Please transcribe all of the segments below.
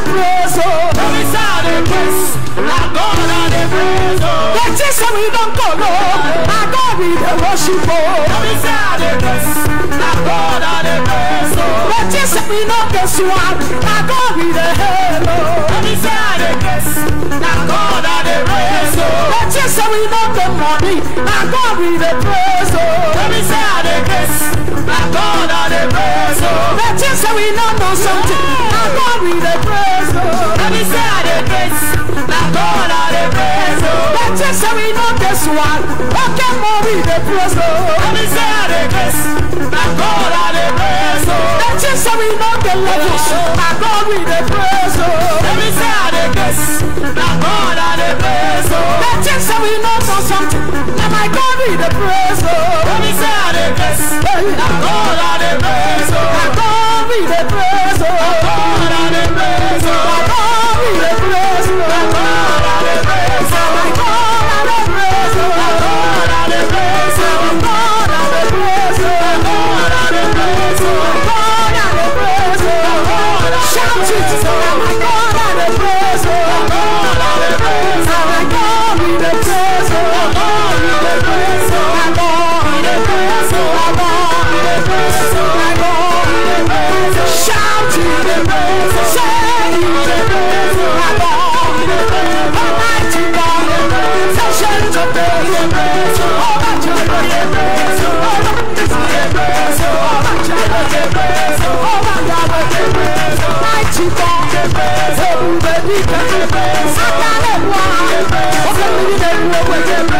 they praise, oh. Every sound they praise. Now God and they praise, oh. we don't go, no. Now God we worship, oh. Every sound they praise. Now God and they praise, oh. That is we don't go, so. Now God we they hello. Oh. Every sound they praise. Now God and they praise, oh. That is we don't go, money. Now God we they oh. The things we know something. My God we the praise Let me say I the praise. My God I the praise oh. The just that we know this one. Okay more we the praise oh. Let me say I the praise. My God I the praise oh. The just that we not the levels. My God we the praise oh. Let me say I the praise. My God I the praise oh. The just that we know something. my God we the praise oh. Let me say I the praise. My God I the praise Satan, what? What can we do?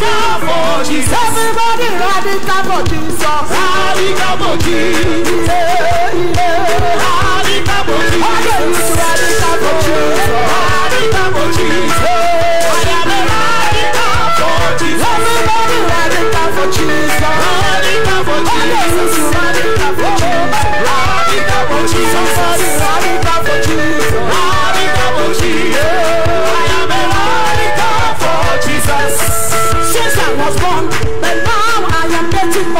Radical Jesus. Everybody radical for Jesus. for Jesus. Yeah, Jesus. Radical Jesus.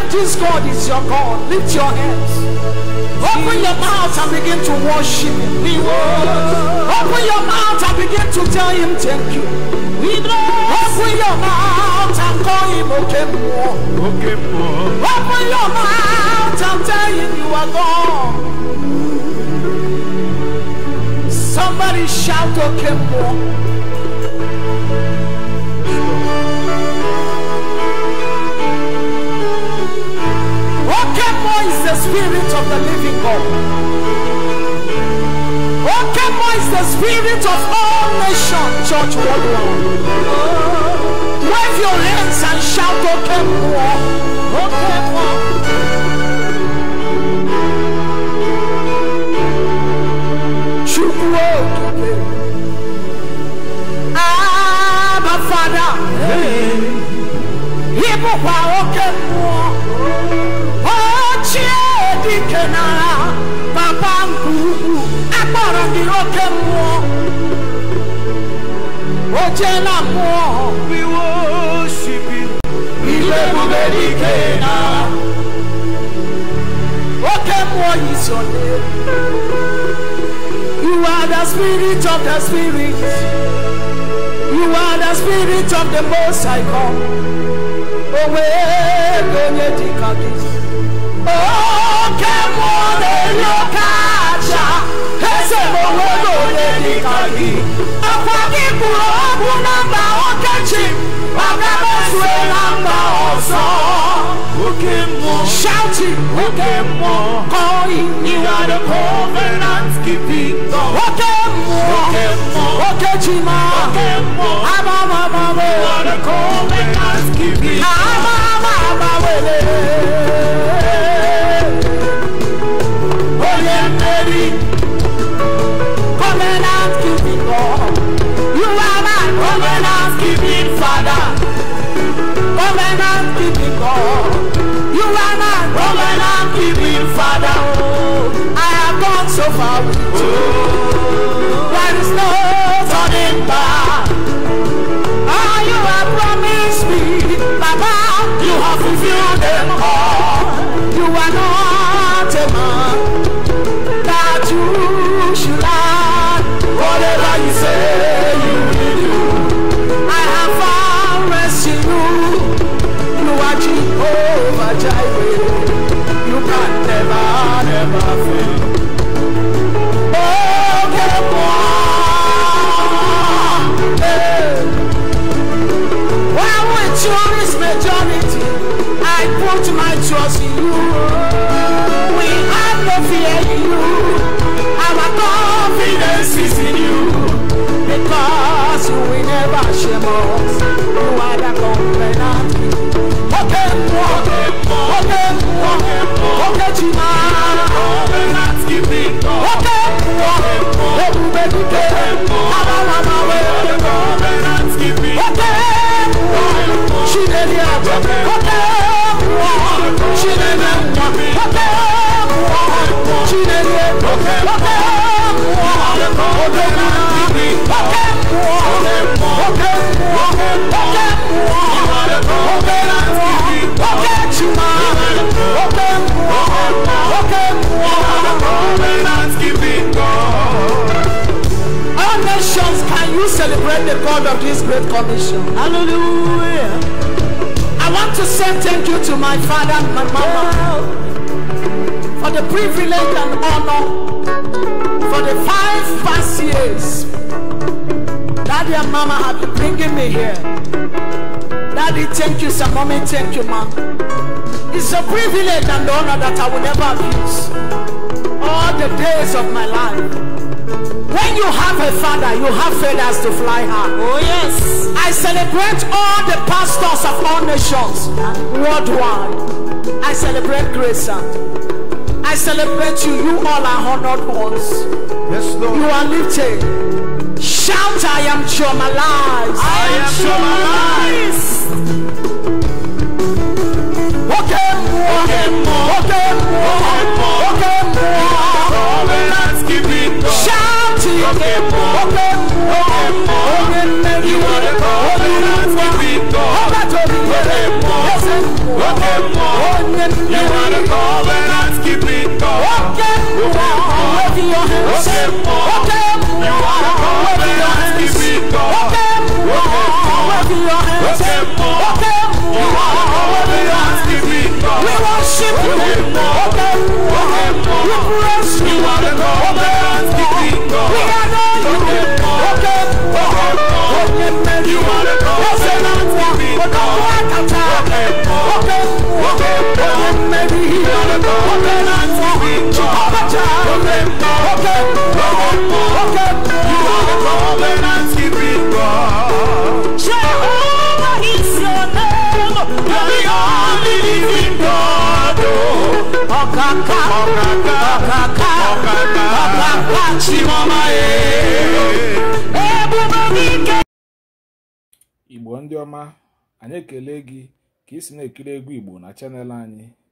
If this God is your God, lift your hands. Open your mouth and begin to worship Him. Open your mouth and begin to tell Him thank you. Open your mouth and call Him Okemwo. Open your mouth and tell Him you are God. Somebody shout Okemwo. Okay, Spirit of the living God. Okemo is the Spirit of all nations, church worldwide. Wave your hands and shout, Okemo. irọ́ kẹ́ mú ọ ó jẹ́ náà mú ọ. You are the spirit of the spirit. You are the spirit of the most high God. Owe donye dikagi. Oh, kemo de yokai. esemowego n'elika gị akwa gị kwuru okwu na mba okechi maka mesue na mba ọzọ oke mmụọ shouting oke mmụọ calling you are the covenant keeping God ba mmụọ oke mmụọ oke chima oke mmụọ abamabamwe you are the covenant keeping God abamabamwe Oke mụọ, oke mụọ, oke chi na nations can you celebrate the God of this great commission? Hallelujah. to say thank you to my father and my mama for the privilege and honor for the five past years. Daddy and mama have been bringing me here. Daddy, thank you, sir. Mommy, thank you, ma'am. It's a privilege and honor that I will never abuse all the days of my life. you have a father, you have feathers to fly high. Oh, yes. I celebrate all the pastors of all nations worldwide. I celebrate grace. I celebrate you. You all are honored ones. Yes, Lord. You are lifted. Shout, I am traumatized. I, I am traumatized. Okay, more. Okay, more. Okay, more. Okay, more. Okay, mbo, oge You are the God who runs the window. Ọbájọ́bí wẹ̀rẹ̀ mbo, You are the God who runs the window. Oge You are the God who runs the You are the God who runs We worship you, oge mbo. igbo ndị ọma anyị ekele gị ka ị si na-ekiri egwu igbo na chanel anyị